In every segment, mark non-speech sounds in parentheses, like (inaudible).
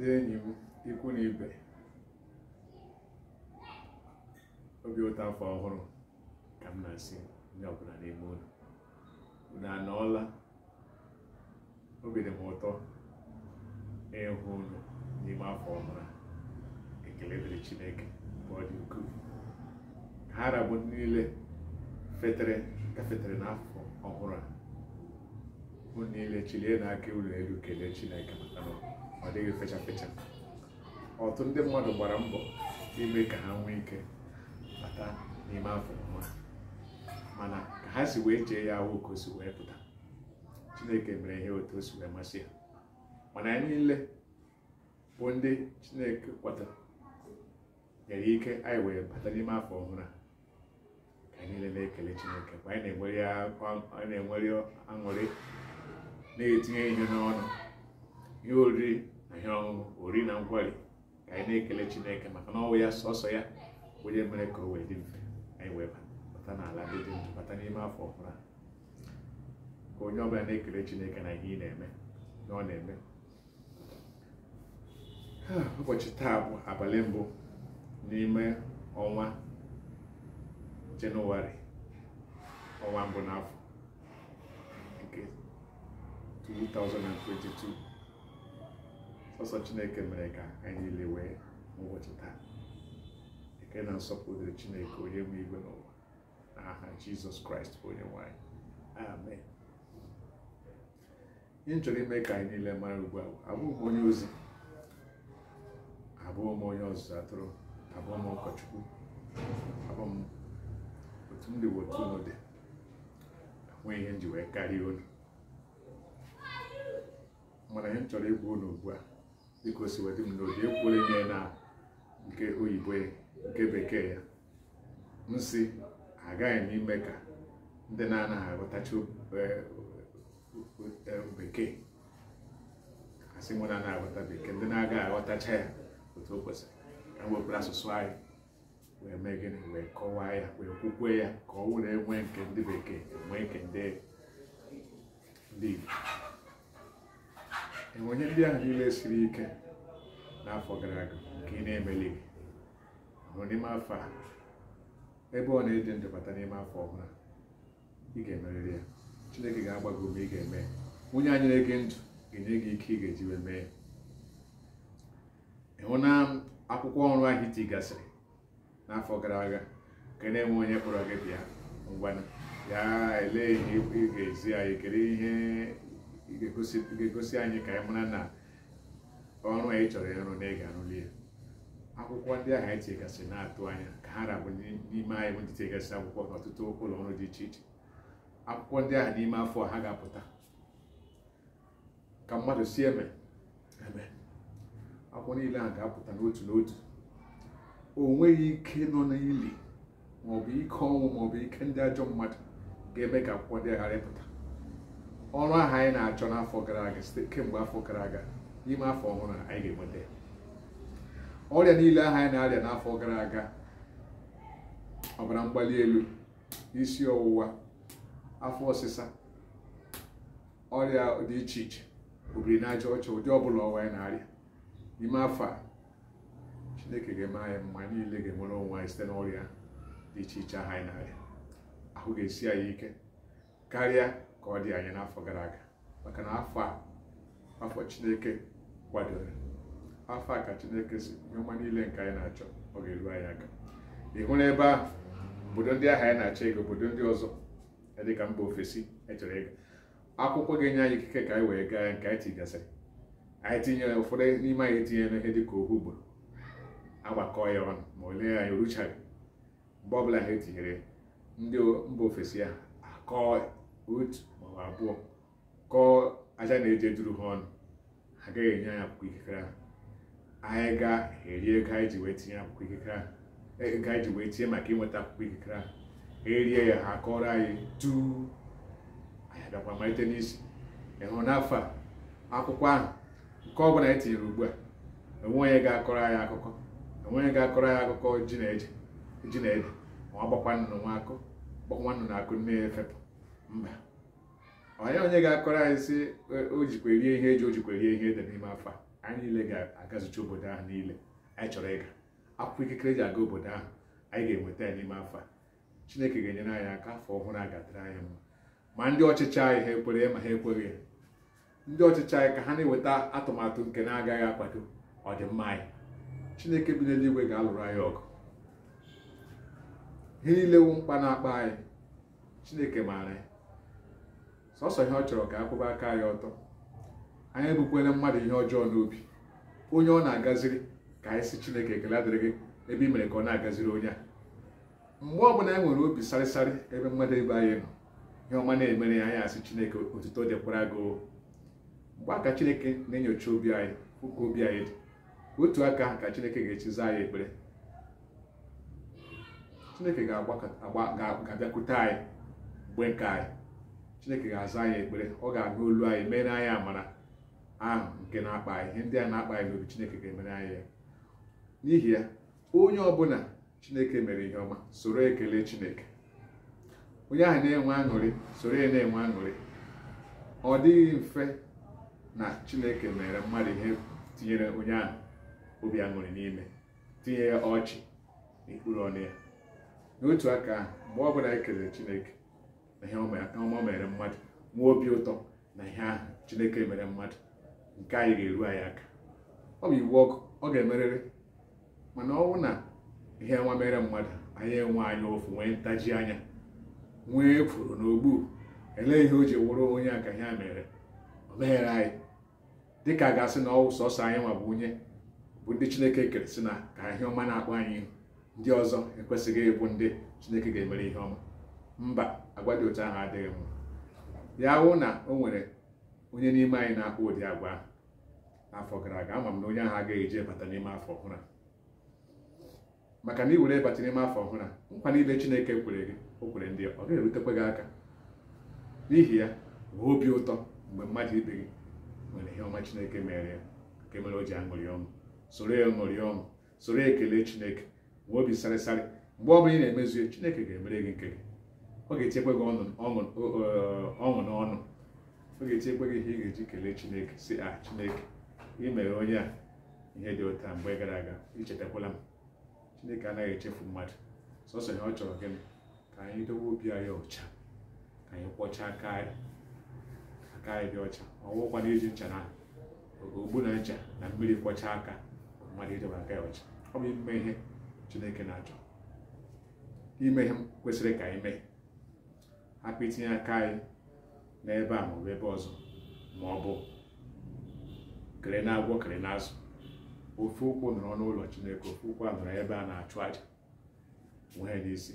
ndị enyi m ikwu na ibe obi ụtọ afọ ọhụrụ ka m na-asị ndị ọbụla n'ime ụlọ unu anọọla obi dị m ụtọ ịhụ ụlọ n'ime afọ ọhụrụ ekele dịrị Chineke mgbe ọ dị ukwuu ha rabụ niile fetere gafetere n'afọ ọhụrụ a ụ niile chilie n'aka ụlọ elu kelee Chineke maka ọ dịghị fecha fecha ọtụtụ ndị mmadụ gbara mbọ ime ka ha nwee ike bata n'ime afọ ọma mana ka ha si wee chee ya ahụ ka o si wee pụta chineke mere ihe otu o si wee masị ya mana anyị niile bụ ndị chineke kwata nyere ike anyị wee bata n'ime afọ ọhụrụ ka anyị niile na-ekele chineke mgbe anyị na-enwere aṅụrị na-etinye ihe n'ọnụ ihe oriri ihe ọṅụṅụ ori na nkwari ka anyị na-ekele chineke maka na ọnwụ ya sọsọ ya onye mere ka o wee dị mfe anyị wee bata n'ala dị dị bata n'ime afọ ọhụrụ ka onye ọbụla na-ekele chineke na ihe ị na-eme na ọ na-eme (sighs) ụbọchị taa bụ abalị mbụ n'ime ọnwa jenụwarị ọnwa mbụ n'afọ nke 2022 ọsọ chineke mere ka anyị niile wee n'ụbọchị taa eke na nsọpụrụ dịrị chineke onye nwe igwe n'ụwa n'aha jizọs kraịst bụ onye nwanyị amen ihe chọrọ ime ka anyị niile mara ugbu a abụghị m onye ozi Abụọ m onye ọzụzụ atụrụ abụọ m ụkọchukwu abụọ m otu m dị otu dị enweghị ihe m ji wee karịa unu mana ihe m chọrọ ịgwa ụlọ ugbu a biko siwedị m n'obi ekwuola ime na nke oyibo nke bekee ya m si agaghị m ime ka ndị na-anaghị aghọtacha bekee asị nwe na-anaghị aghọta bekee ndị na-agaghị aghọtacha ya otu o kwesịrị ka m wepụrụ asụsụ anyị wee mee gịnị wee kọwaa ya wee kwukwe ya ka ọ wụrụ enwee nke ndị bekee enwee nke ndị Igbo enwe ihe ndị ahụ niile siri ike n'afọ gara aga nke ị na-emeli hụ n'ime afọ a ebe ọ na-eji ndụ bata n'ime afọ ọhụrụ ị ga-emerịrị ya chineke ga-agba gị ume ị ga-eme onye anyị na-ege ndụ ga-enye gị ike ị ga-eji wee mee ịhụ na akwụkwọ ọrụ ahụ iti gasịrị n'afọ gara aga nke na-enwe onye kpọrọ gị bịa ngwana ya elee ihe ị ga-ezi anyị kelee ihe ị ga-egosi anyị ka anyị mara na ọrụ anyị chọrọ ịrụ na ị ga-arụli ya akwụkwọ ndị ahụ anyị tigasị na-atụ anya ka ha rabụ n'ime anyị bụ ndị tigasị akwụkwọ ọtụtụ ụlọ ọrụ dị iche iche akwụkwọ ndị ahụ n'ime afọ ha ga-apụta ka mmadụ si eme eme akwụkwọ niile ahụ ga-apụta n'otu n'otu o nweghị ike nọ n'ili maọbụ ike ọnwụ maọbụ ike ndị ajọ mmadụ ga-eme ka akwụkwọ ndị ghara ịpụta ọrụ ahụ anyị na-achọ n'afọ gara aga site kemgbe afọ gara aga n'ime afọ ọhụrụ anyị ga-enweta ọrịa niile ahụ anyị na-arịa n'afọ gara aga ọbara mgbali elu isi ọwụwa afọ ọsịsa ọrịa dị iche iche obiri n'aja ọcha ụdị ọbụla ọwa na-arịa n'ime afọ a chineke ga-eme anyị mma niile ga-enwere onwe anyị site n'ọrịa dị iche iche ahụ anyị na-arịa ahụ ga-esi anyị ike karịa ka ọ dị anya n'afọ gara aga maka na afọ a afọ chineke kwadoro afọ a ka chineke si ọma niile nke anyị na-achọ ọ ga-eru anyị aka ịhụ na ebe ahụ obodo ndị ahụ anyị na-achọ ego obodo ndị ọzọ dịka mba ofesi echọrọ ego akwụkwọ ga-enye anyị ikike ka anyị wee gaa nke anyị tigasịrị anyị tinyere ụfọdụ n'ime anyị etinyere ihe dịka ohu ugboro agbakọ ya ọnụ ma olee anyị oruchaghị mgbe ọbụla ha etinyere ndị mba ofesi ahụ akọọ maọbụ abụọ kọọ aja na-eje duru ha ọnụ ha agaghị enye anyị akwụkwọ ikikere ahụ anyị ga-eri ego anyị ji wee tinye akwụkwọ ikikere ahụ ego anyị ji wee tinye maka inweta akwụkwọ ikikere ahụ erie ya ha kọrọ anyị tu anyị agakwa malite n'isi ịhụrụ n'afọ a akwụkwọ ahụ nke ọ bụla anyị tinyere ugbu a enwe onye ga-akọrọ anyị akụkọ enwe onye ga-akọrọ anyị akụkọ ji na eje ji na ede ma ọ gbakwa nnụnụ nwa akụ gbakwa nnụnụ akụ nne ya efepụ mba onye onye ga-akọrọ anyị sị o jikwa erie ihe eji o jikwa rie ihe dị n'ime afọ anyị niile ga-agazicha obodo ahụ niile anyị chọrọ ịga akwụkwọ ikikere ji aga obodo ahụ anyị ga-enweta ya n'ime afọ chineke ga-enyere anyị aka afọ ọhụrụ a ga anyị mma ma ndị ọchịchị anyị ha ekwere ma ha ekweghị ndị ọchịchị anyị ka ha na enweta atụmatụ nke na-agaghị akwado ọdịmma anyị chineke bi n'eluigwe ga-alụrụ anyị ọgụ ihe niile wu mkpa na-akpa anyị chineke maara sọsọ ihe ọ chọrọ ka akwụba aka ya ọtọ anyị ebukwele mmadụ ihe ọjọọ n'obi onye ọ na-agaziri ka anyị si chineke ekele adịrị gị ebe i mere ka ọ na-agaziri onye a mgbe ọ bụla anyị e nwere obi sarịsarị ebe mmadụ ebe anyị nọ ihe ọma na-emere ya anyị asị chineke otuto dịkwara gị mgbe aka chineke na-enyocha obi anyị ụka obi anyị dị otu aka ka chineke ga-echizi anyị ekpere chineke ga-abịakwute anyị mgbe nke anyị chineke ga-aza anyị ekpere ọ ga aga olu anyị mere anyị amara ahụ nke na-akpa anyị ihe ndị a na-akpa anyị n'obi chineke ga-emere anyị ya n'ihi ya onye ọbụla chineke mere ihe ọma soro ekele chineke onye ahụ na-enwe aṅụrị soro ya na-enwe aṅụrị ọ dịghị mfe na chineke mere mmadụ ihe tinyere onye ahụ obi aṅụrị n'ime tinye ya ọchị n'ikpuru ọnụ ya n'otu aka ahụ mgbe ọbụla anyị e chineke na ihe ọma mere mmadụ nwee obi ụtọ na ihe ahụ chineke mere mmadụ nke anyị ga-eru anyị aka ọ bụ iwu ọkụ ọ ga-emerịrị mana ọ bụ na ihe nwa mere mmadụ anyị enwe anya ofu nwee ntaji anya nwee na n'ogbu elee ihe o ji wụrụ onye aka ihe a mere o meghere anyị dịka a ga-asị na ọwụ sọsọ anyị nwa bụ onye bụ ndị chineke kere na ka ihe ọma na-akpọ anyị ndị ọzọ ekwesịghị ịbụ ndị chineke ga-emere ihe ọma mba agwa dị otu ahụ adịghị mma ya wụ na o nwere onye n'ime anyị na-akpụ ụdị agwa n'afọ gara aga ama m na onye ahụ agaghị eji ịbata n'ime afọ ọhụrụ maka na iwere were ịbata n'ime afọ ọhụrụ nkwa niile Chineke kwere gị o kwere ndị ọ ga-erutekwa gị aka n'ihi ya nwee obi ụtọ mgbe mmadụ ibe gị nwere ihe ọma Chineke mere ya nke mere o ji aṅụrị ọṅụ soro ya ṅụrị ọṅụ soro ekele Chineke nwee obi sarịsarị mgbe ọ ị na-emezu Chineke ga-emere gị nke gị ọ ga-echekwa gị ọṅụ n'ọnụ ọ ga-echekwa gị ihe ị ga-eji kelee chineke si a ah, chineke imere onye a ihe dị ụta mgbe gara aga ichetakwala m chineke anaghị echefu mmadụ sọsọ ihe ọ chọrọ gị ka anyị dowe obi anyị ọcha ka anyị kpọchaa aka anyị dị ọcha na iji ncha na ogbu na ncha na mmiri kwọchaa aka mmadụ idobe aka ya ọcha ọ bụ ime ihe chineke na-achọ ime ihe kwesịrị ka anyị mee hapụ itinye aka anyị n'ebe a maọbụ ebe ọzọ ma ọ bụ kere na agwọ kere na azụ ụkwụ nọrọ n'ụlọ chineke ofe ụkwụ a nọrọ ebe a na-achụ aja nwee n'isi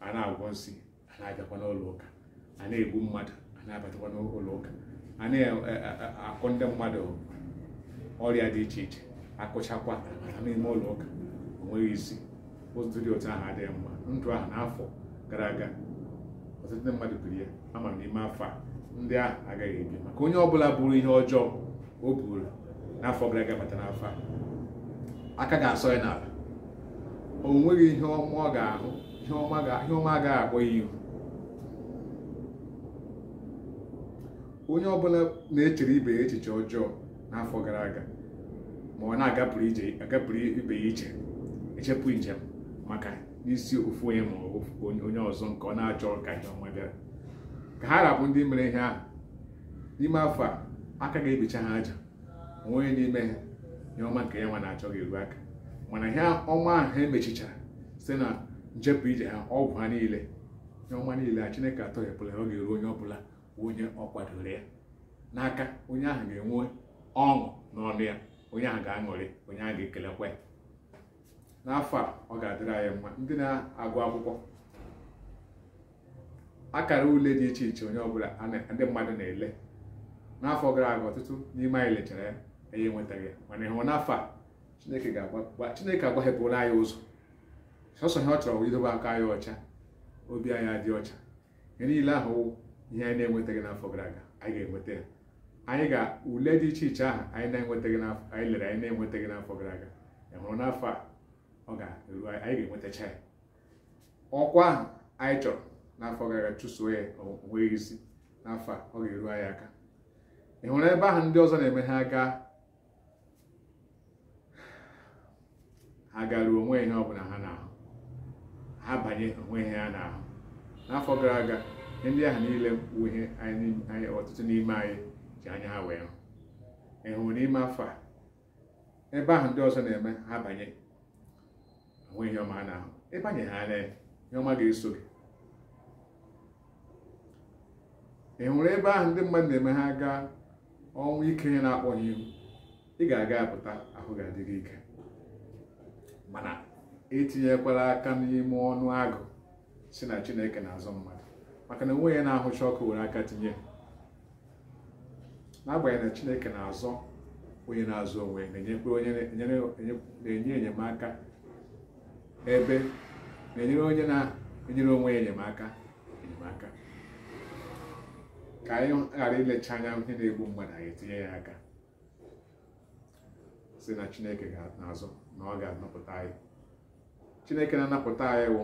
a na-agwọ nsị a na-abịakwa n'ụlọ ụka a na-egbu mmadụ a na-abatakwa n'ụlọ ụka a na-akụ ndị mmadụ ọrịa dị iche iche akụchakwa n'ime ụlọ ụka onweghị isi ụtụtụ dị otu ahụ adịghị mma ndụ ahụ n'afọ gara aga ọtụtụ ndị mmadụ biri ya ama n'ime afọ a ndị ahụ agaghị ebi maka onye ọbụla bụrụ ihe ọjọọ o buru n'afọ gara aga bata n'afọ a aka ga-asọ ya n'ala o nweghị ihe ọma ọ ga-ahụ ihe ọma agaghị akpọ ya ihu onye ọbụla na-echere ibe ya echiche ọjọọ n'afọ gara aga ma ọ na-agapụrụ ibe ya iche echepụ njem maka isi ofu onye ma onye ọzọ nke ọ na-achọ ka ihe ọma bịara ka ha rapụ ndị mere ihe ahụ n'ime afọ a aka ga-ebicha ha aja onye n'ime ha ihe ọma nke ya nwa na-achọ ga-eru aka mana ihe ọma ahụ ha e emechichara site na njepụ ije ha ọgwụ ha niile ihe ọma niile a chineke atọghepụla ọ ga-eru onye ọbụla onye ọ kwadoro ya n'aka onye ahụ ga-enwe ọṅụ n'ọnụ ya onye ahụ ga-aṅụrị onye ahụ ga-ekelekwa ya n'afọ a ọ ga-adịrị anyị mma ndị na-agụ akwụkwọ akara ule dị iche iche onye ọbụla ndị mmadụ na-ele n'afọ gara aga ọtụtụ n'ime anyị lechara ya enye enwetaghị ya mana ịhụ n'afọ a chineke ga-agba chineke agbaghepụla anyị ụzọ sọsọ ha ọ chọrọ idobe aka anyị ọcha obi anyị adị ọcha ihe niile ahụ ihe anyị na-enwetaghị n'afọ gara aga anyị ga-enweta ya anyị ga ule dị iche iche ahụ anyị na-enwetaghị n'afọ anyị lere anyị na-enwetaghị n'afọ gara aga ịhụrụ n'afọ a ọ ga-eru anyị ga-enwetacha ya ọkwa ahụ anyị chọrọ n'afọ gara aga chụso ya onweghị isi n'afọ a ọ ga-eru anyị aka ị hụrụ ebe ahụ ndị ọzọ na-eme ha gaa ha garuo onwe ihe ọbụla ha na-ahụ ha banye onwe ihe ha na-ahụ n'afọ gara aga ndị ahụ niile bụ ihe anyị ọtụtụ n'ime anyị ji anya ha wee hụ hụrụ n'ime afọ a ebe ahụ ndị ọzọ na-eme ha banye hụ ihe ọma na ahụ ebe ha anya ihe ọma ga-eso gị ị hụrụ ebe ahụ ndị mmadụ na-eme ha gaa ọnwụ ike ya na-akpọ ya ihu ị ga-aga apụta ahụ ga-adị gị ike mana etinyekwala aka n'ime ọnụ agụ si na chineke na-azụ mmadụ maka na onwe ya na-ahụcha ọkụ were aka tinye n'agbanyeghị na chineke na-azọ onye na-azụ onwe na-enye enyemaka ebe na-enyere onye na-enyere onwe ya enyemaka enyemaka ka anyị ghara ilecha anya ihe na-egbu mmadụ anyị etinye ya aka si na chineke ga-azụ na ọ ga-anapụta anyị chineke na-anapụta anyị wụ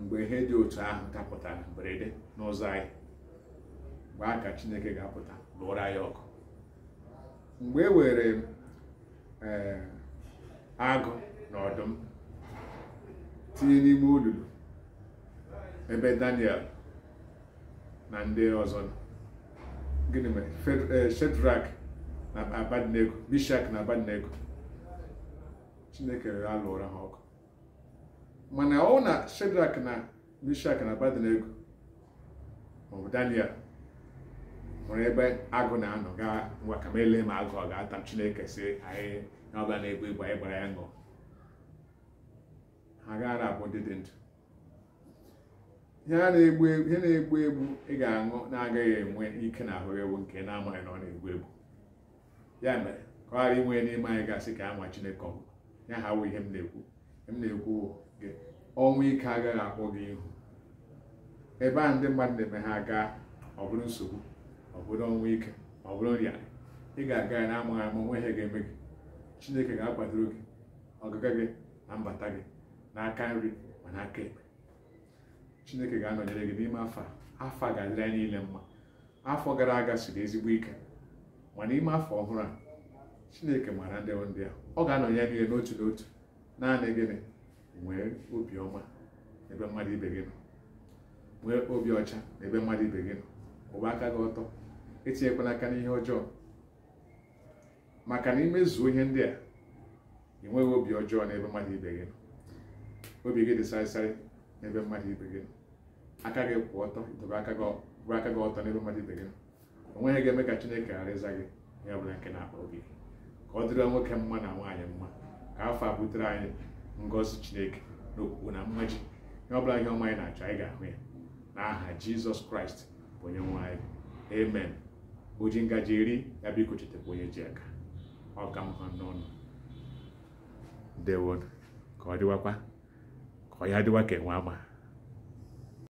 mgbe ihe dị otu ahụ dapụtara mberede n'ụzọ anyị mgbe a ka chineke ga-apụta lụọra anyị ọkụ mgbe e were eh, agụ na ọdụm tinye n'ime olulu ebe daniel na ndị ọzọ gịnị mere eh, shedrak na abadnego bishak na abadnego chineke rere alụra ha ọkụ mana ọ na shedrak na bishak na abadnego maọbụ daniel nwere ebe agụ na-anọ gaa ngwa ka ele ma agụ ọ ga-ata m chineke si anyị na ọbịa na-egbu egbu anyị gbara ya ṅụọ ha gaara abụ ndị dị ndụ ihe na-egbu na-egbu egbu ị ga-aṅụ na-agaghị enwe ike na ahụ ewu nke na-amaghị na ọ na-egbu egbu ya mere ka ọ ghara inwe n'ime anyị gasị ka anwa Chineke ọgụ ya ha wụ ihe m na-ekwu m na-ekwu gị ọnwụ ike agaghị akwụ gị ihu ebe ahụ ndị mmadụ na-eme ha gaa ọ bụrụ nsogbu ọ bụrụ ọnwụ ike ọ bụrụ nrịarị ị ga-aga ya na-amaghị ama onwe ha ga-eme gị Chineke ga-akwadoro gị ọgaga gị na mbata gị n'aka nri ma n'aka ekpe chineke ga-anọnyere gị n'ime afọ afọ a ga-adịrị anyị niile mma afọ gara aga siri ezigbo ike ma n'ime afọ ọhụrụ a chineke maara ndị ndị a ọ ga anọnyere niile n'otu n'otu naanị gịnị nwee obi ọma n'ebe mmadụ ibe gị nọ nwee obi ọcha n'ebe mmadụ ibe gị nọ kwụba aka gị ọtọ etinyekwala aka n'ihe ọjọọ maka na imezuo ihe ndị a ị nweghị obi ọjọọ n'ebe mmadụ ibe gị nọ obi gị dị sarịsarị n'ebe mmadụ ibe gị aka gị kwụ ọtọ dobe aka gị ọtọ n'ebe mmadụ ibe gị o nweghị ga-eme ka chineke ghara ịza gị ya bụla nke na akpọ gị ka ọ dịrị nwoke mma na nwaanyị mma ka afọ a butere anyị ngozi chineke na na mmaji ihe ọ bụla ihe ọma anyị na-achọ anyị ga-ahụ ya n'aha jizọs kraịst bụ onye nwanyị anyị amen oji ngaji iri ya biko chetakwa onye ji aka ọ ka mma n'ọnụ ndewon ka ọ dịwakwa 我有啲要给我嘛。